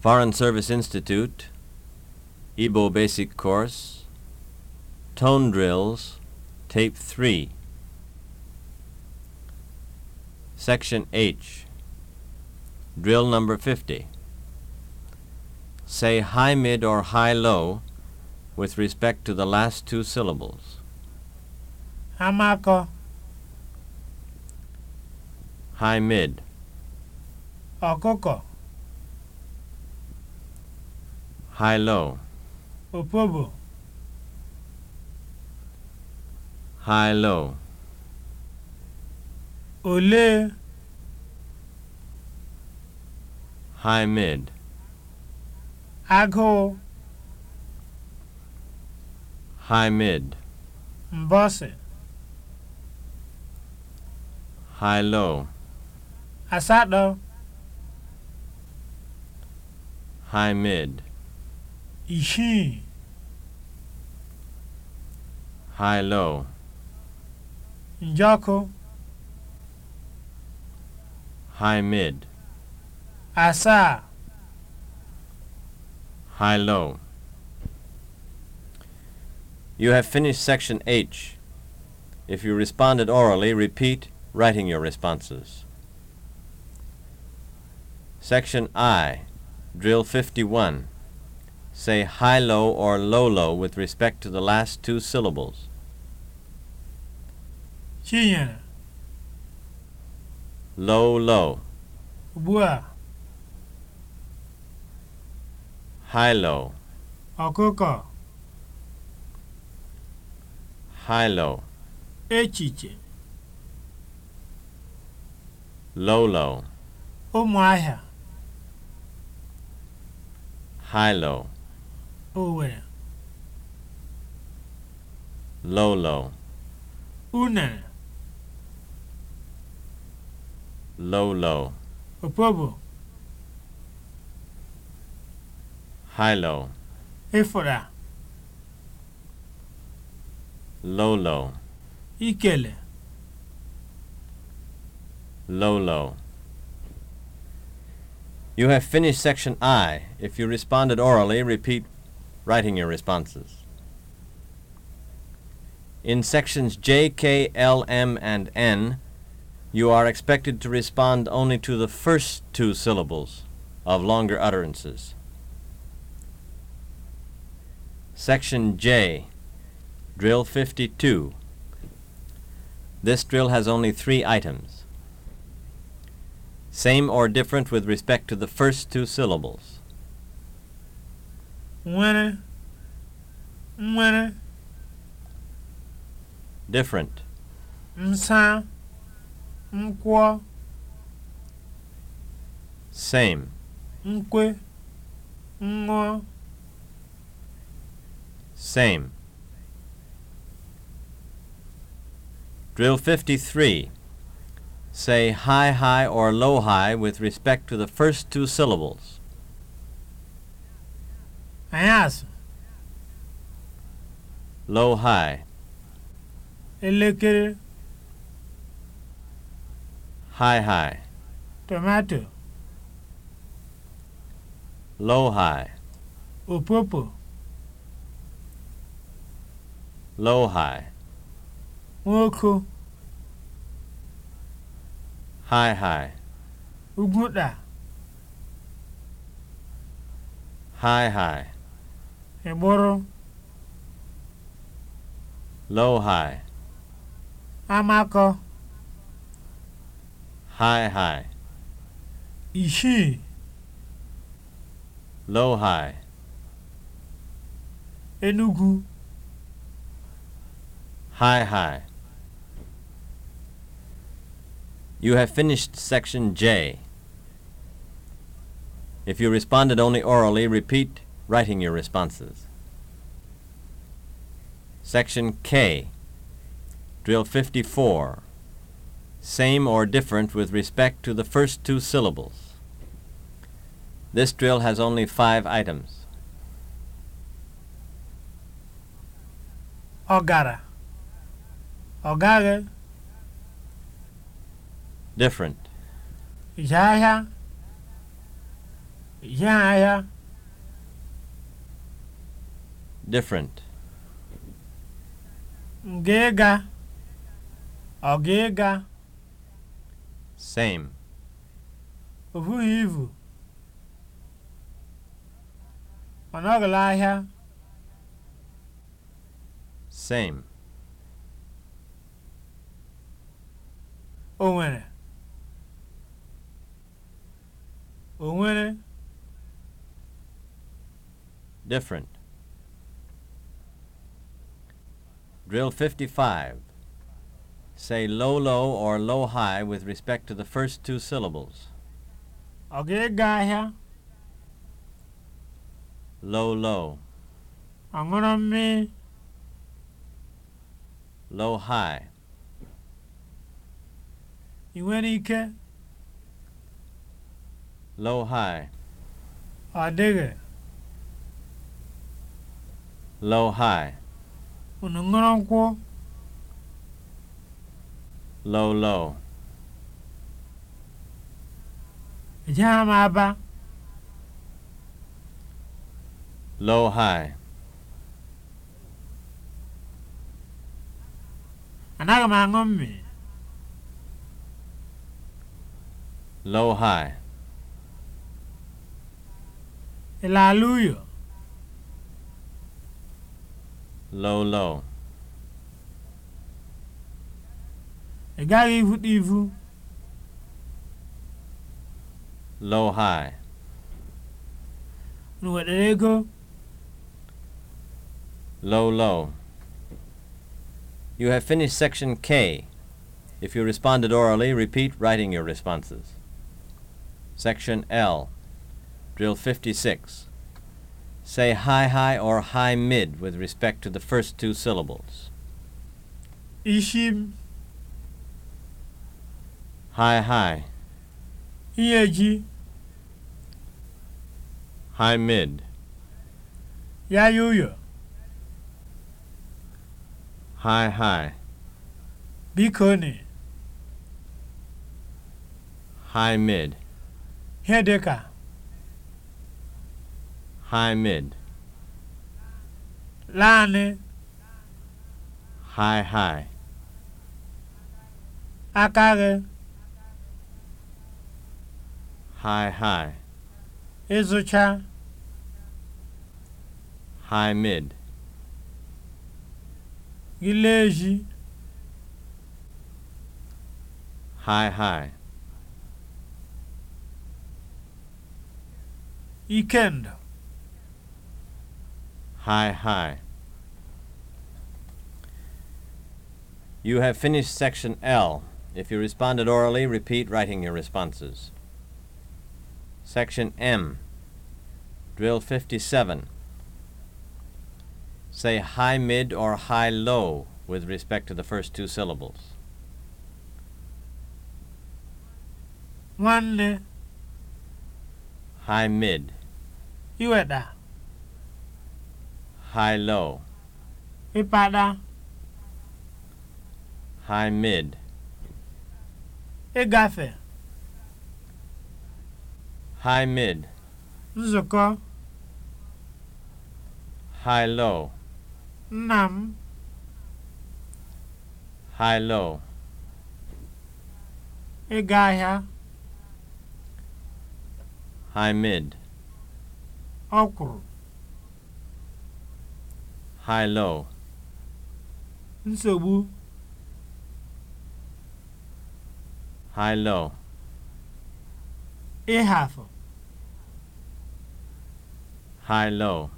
Foreign Service Institute, Igbo Basic Course, Tone Drills, Tape 3, Section H, Drill Number 50. Say high mid or high low with respect to the last two syllables. Amako. High mid. Okoko. high low opobo high low ole high mid agụụ high mid mbọsị high low asatọ high mid isii high low njọkụ high mid asaa high low You have finished section H. If you responded orally, repeat writing your responses. Section I, Drill 51. say high low or low low with respect to the last two syllables. ရှင်းရင် low low, အပူက high low, အကုတ်က high low, အဲ့ချီချင် low low, Owerri. Lolo. Unere. Lolo. Opobo. Hilo. Efora. Lolo. Ikele. Lolo. You have finished section I. If you responded orally, repeat writing your responses. In sections J, K, L, M, and N, you are expected to respond only to the first two syllables of longer utterances. Section J, Drill 52. This drill has only three items. Same or different with respect to the first two syllables. nwere nwere different nsa nkwọ same nkwe ṅụọ same Drill 53. Say high high or low high with respect to the first two syllables. anyasị low high elekere high high tomato low high opopo low high nwoko high high ugwuta high high ịgbụrụ low high Amako? high high isii low high Enugu high high You have finished section J. If you responded only orally, repeat writing your responses. Section K Drill 54 Same or different with respect to the first two syllables. This drill has only five items. Ogara. Ogara. Different. Yaya. Yaya. different. Nga ịga, ọ ga ịga? Same. Ọ bụghị ivu. Ọ ahịa. Same. O nwere. O nwere. Different. Drill 55. Say low low or low high with respect to the first two syllables. Ọ ga-ego Low low. Ọ gonna mmiri? Low high. Ị nwere ike? Low high. Ọ Low high. unu ṅụrụ nkwụ low low ejegha m aba low high anaghị m aṅụ mmiri low high ị laala uyo low low ị gaghị ivuta ivu low high nwetara ego low low You have finished section K. If you responded orally, repeat writing your responses. Section L. Drill 56. say high high or high mid with respect to the first two syllables. Ishim. High high. Iyeji. High mid. Yayuyo. High high. Bikoni. High mid. Hedeka. High-mid. Lani. High-high. Akare. High-high. Izucha. high mid. Gileji. High-high. Ikendo. High, high. You have finished section L. If you responded orally, repeat writing your responses. Section M. Drill 57. Say high mid or high low with respect to the first two syllables. Nwanne. High mid. Iweda. high low. Ịpada. High mid. Ịgafe. High mid. Nzukọ. High low. Nna m. High low. Ịga ahịa. High mid. Ọkwụrụ. high low nsogbu high low ịhafụ high low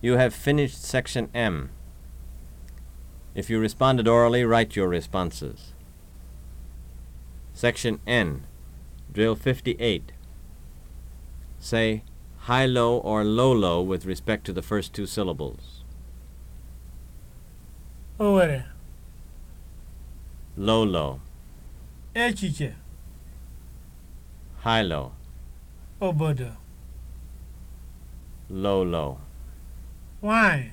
you have finished section m if you responded orally write your responses section n drill 58 say high low or low low with respect to the first two syllables. Owere. Low low. Echiche. High low. Obodo. Low low. Hilo.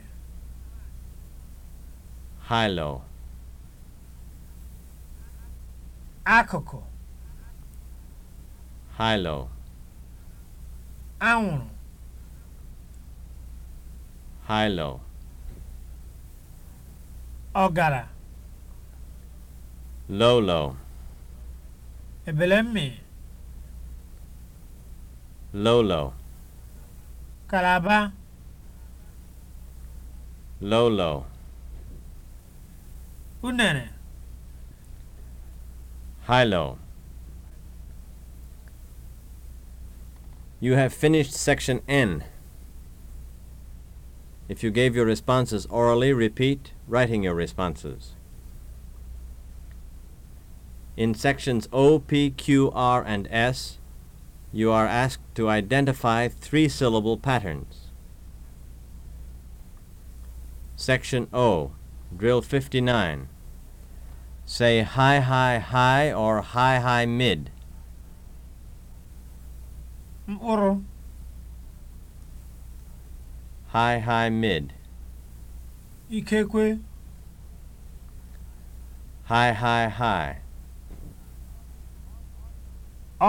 High low. High low. anwụrụ hilo ọgara lolo ebelemmi lolo kalaba lolo unere hilo You have finished section N. If you gave your responses orally, repeat writing your responses. In sections O, P, Q, R, and S, you are asked to identify three syllable patterns. Section O, drill 59. Say high, high, high or high, high, mid. mkpụrụ high high mid ikekwe high high high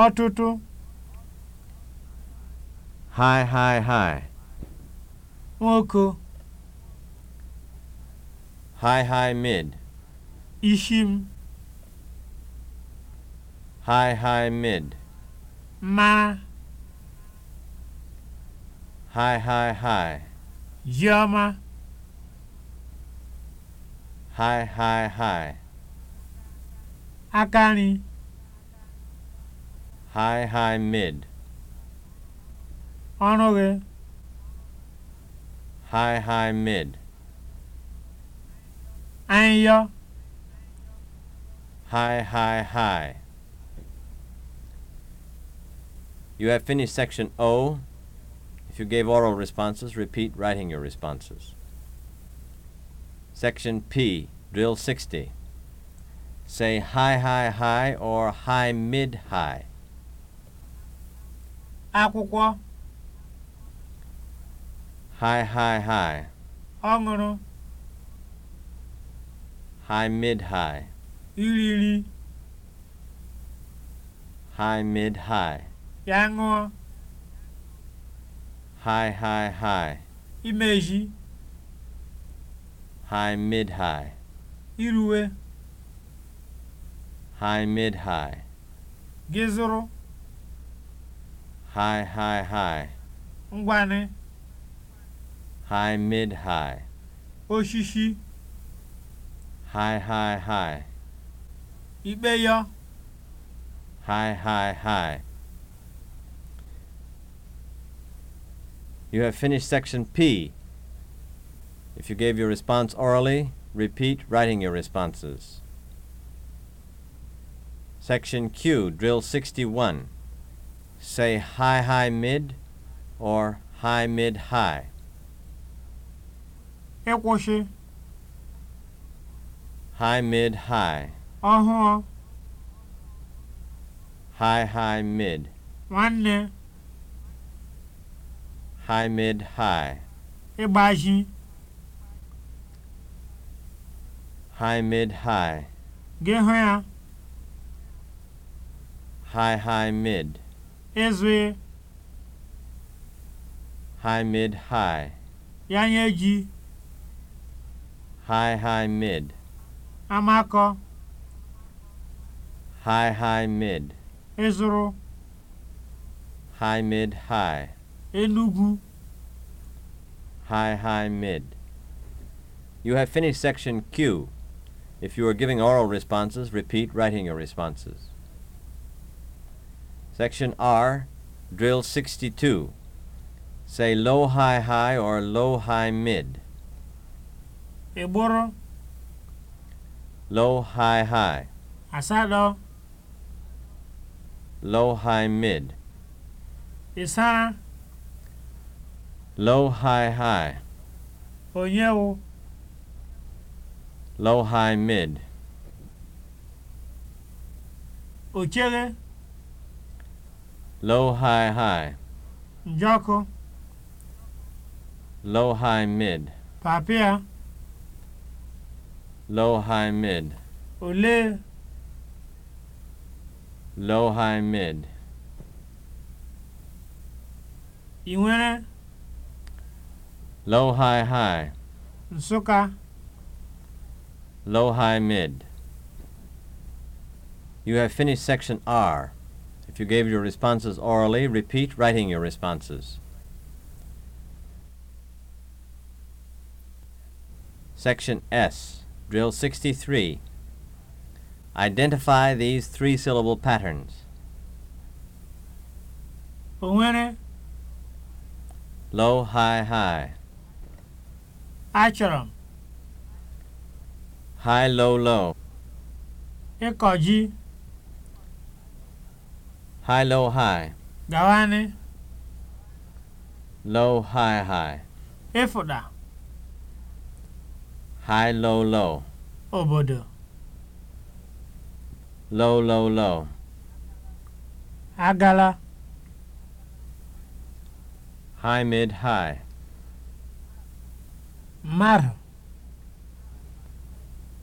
ọtụtụ high high high nwoke high high mid ishi high high mid ma Hi, hi, hi. oma. Hi, hi, hi. Akani. Hi, hi, mid. Onoge. Hi, hi, mid. Anya. Hi, hi, hi. You have finished section O. If you gave oral responses, repeat writing your responses. Section P, Drill 60. Say high, high, high or high, mid, high. Akwụkwọ. High, high, high. Ọṅụrụ. High, mid, high. Iriri. High, mid, high. Ya High, high, high. Imeji. High, mid, high. Iruwe. High, mid, high. Gizuru? High, high, high. Ngwane. High, mid, high. Oshishi. High, high, high. Ikpe High, high, high. You have finished section P. If you gave your response orally, repeat writing your responses. Section Q, drill 61. Say high, high, mid or high, mid, high. High, mid, high. Uh huh. High, high, mid. One. high mid high ịgbaji high mid high ya high high mid ịzụ high mid high ya nye ji high high mid amakọ high high mid ịzụrụ high mid high Enugu. High, high, mid. You have finished section Q. If you are giving oral responses, repeat writing your responses. Section R, drill 62. Say low, high, high or low, high, mid. Eboro. Low, high, high. Asado. Low, high, mid. Isara. Low high high. Onye Low high mid. Ochere. Low high high. Njọkụ. Low high mid. Papịa. Low high mid. Ole. Low high mid. Ị nwere? Low high high. Nsụka. Low high mid. You have finished section R. If you gave your responses orally, repeat writing your responses. Section S, Drill 63. Identify these three syllable patterns. Onwere. Low, high, high. Achọrọ m. High low low. Ịkọ ji. High low high. Gawanị. Low high high. Ịfụda. High low low. Obodo. Low low low. Agala. High mid high. mmadụ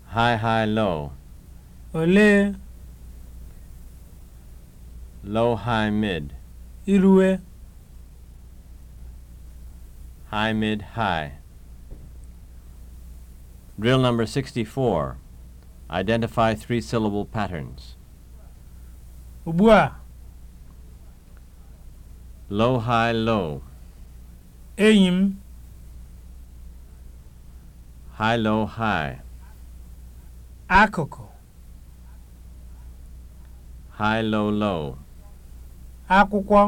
high high low olee low high mid irue high mid high drill number 64 identify three syllable patterns ugbu a low high low enyi high low high akụkụ high low low akwụkwọ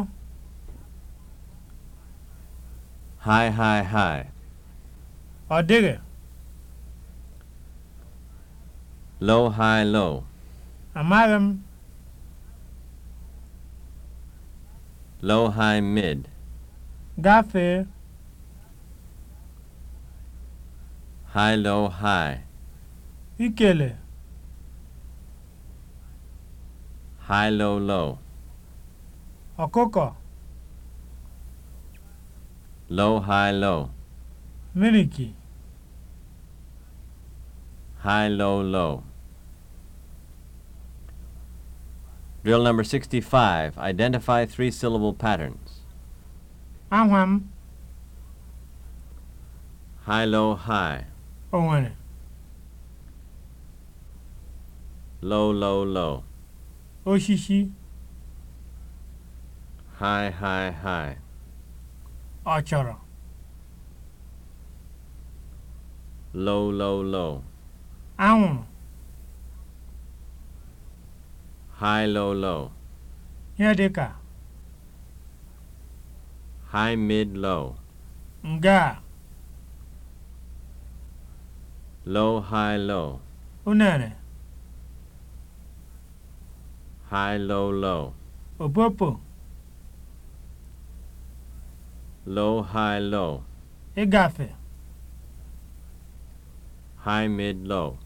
high high high ọ dịghị low high low amaghị m low high mid gafee high low high ikele high low low Okoko. low high low miliki high low low Drill number 65. Identify three syllable patterns. Ahwam. High, low, high. o nwere low low low oshishi high high high ọchọrọ low low low anwụrụ high low low ihe dị ka high mid low nga Low, high, low. Unere. High, low, low. Opopo. Low, high, low. Ịgafe. High, mid, low.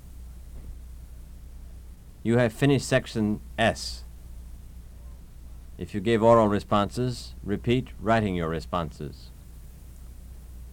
You have finished section S. If you gave oral responses, repeat writing your responses.